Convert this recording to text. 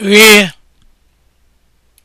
rie